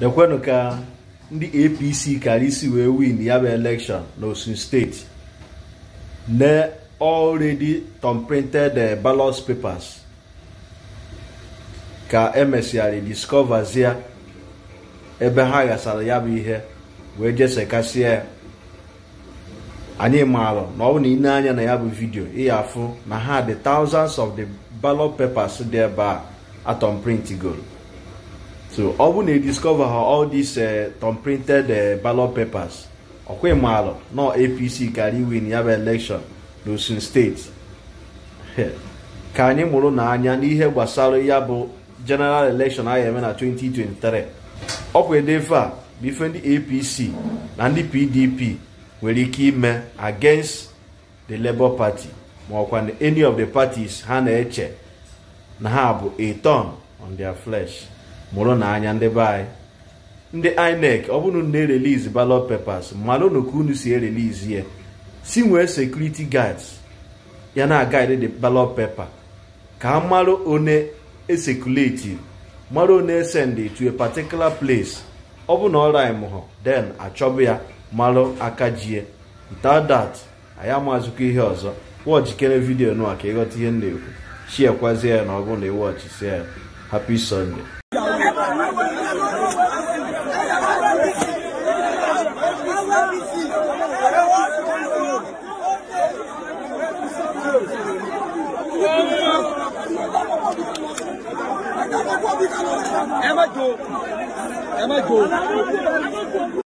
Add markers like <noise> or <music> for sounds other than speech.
kwenu ka ndị apc kara isi wee win ya bụ elekshọn n'osun steeti na already thumbprinted eh, balos papers ka emesịarị discoverzie ebe ha ghasara ya bụ ihe wee jesekasịa anyị maara na ọ bụ na ị na-anya na ya bụ vidio ị ya afụ na ha dị thousands of the ballot papers dị ebe a atom print so ọ bụ na ediscover ha all these uh, tom printed uh, ballot papers ọkwa ịmaalụ nọ apc karị win ya bụ election n'Osun steeti <laughs> ka anyị mụrụ n'anya n'ihe gbasara ya bụ general election a ga-eme na 2023 ọkwa edefe a ndị apc na ndị pdp nwere ike ime uh, against the labour party ma ọkwa any of the parties ha na-eche na ha bụ a turn on their flesh mụrụ n'anya ndị be anyị ndị inec ọ bụrụ na erelizi ballot papers malụnụ ka unu si erelizi ya si nwee sekuriti gads ya na guide the ballot paper ka a marụ one esekuleti marụ one send to a particular place ọ bụ na ọra mụhụ den achọbụ ya marụ aka jie without anyị amazikwa ihe ọzọ wọchikere vidiyo nụa ka ịghọta ihe m na-ekwu shiekwazie ya na ọ bụrụ na ịwọchisia ya happy sunday má jó ẹ má jó.